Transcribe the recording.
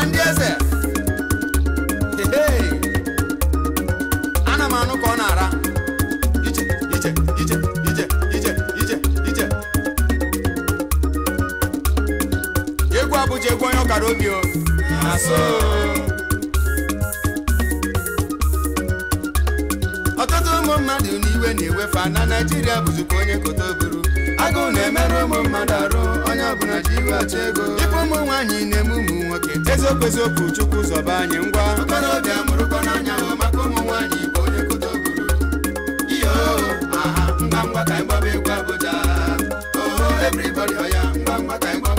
ụwa ndị eze ana m anụ ka ọ na-ara iche iche iche iche iche, ije ije egwu abụja egwu onye ọkara obi o ọtụtụ ụmụ mmadụ n'iwe na-ewefa na Naịjirịa ka onye kota oburu agụụ na-emerụ ụmụ mmadụ arụ onye ọbụla ji iwe achọ ego kwezi okwu zọba anyị ngwa okorobịa mụrụkọ n'anya hụ maka ụmụ nwaanyị igbo onye kudo guru iyo aha ngwa ngwa ka anyị gbaba egwu abụja oho everybody ọya ngwa ngwa ka anyị